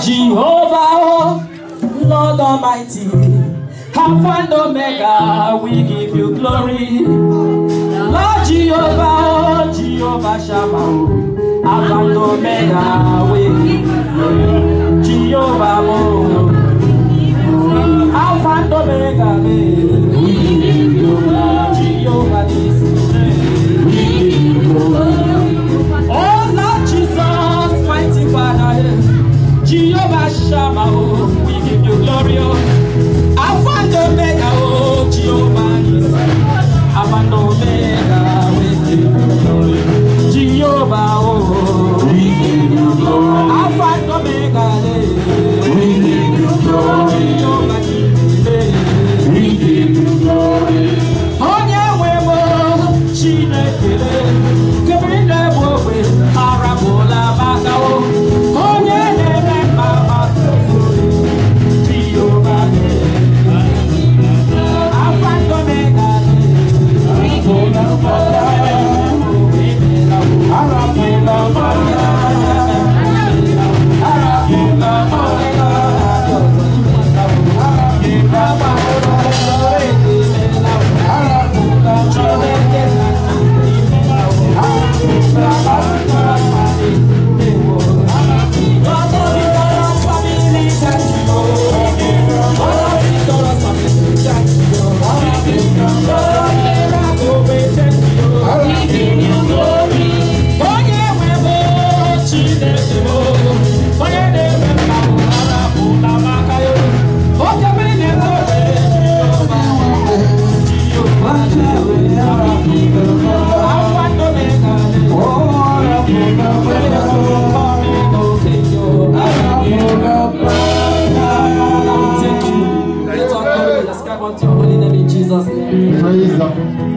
Jehovah, oh, Lord Almighty, Alpha and Omega, we give you glory. Lord Jehovah, oh, Jehovah Shammah, oh, Alpha and Omega, we give you glory. Jehovah. Oh. Abandoned Let's come on holy name in Jesus' name. Praise